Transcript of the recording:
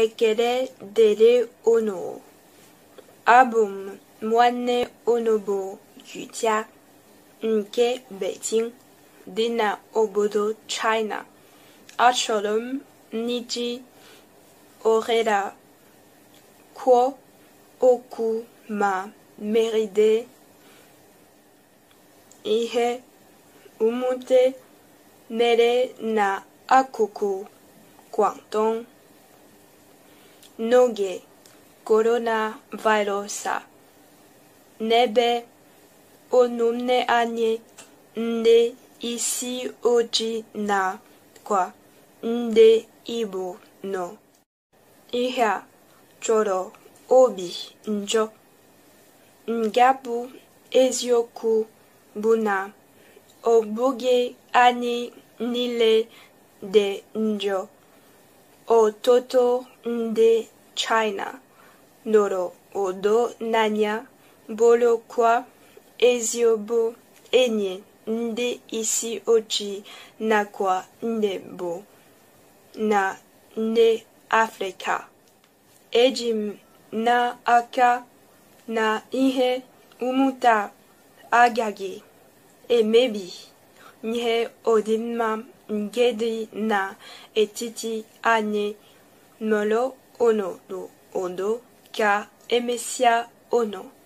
ekere dere onu, Abum mwane onobo yuja nke Beijing dina obodo China. Achọrọ n'iji orela, kwuo oku ma meride ihe umute nere na akuku, Guangdong. n'oge coronavirus a n'ebe ọmụmụ anyị nde isi ojii kwa nde Igbo nọ ihe a chọrọ obi njọ nga eziokwu bụ na ọ bụghị anyị niile dị njọ ọtụtụ ndị China nọrọ ụda n'anya bụrụkwa eziobo enyi ndị isi ochi nakwa nne bụ na ndị Afrịka eji m n'aka na ihe umuta agaghị emebi odin Odinma Ngedi Na Etiti Ane Molo Ono do Ondo Ka Emesia Ono.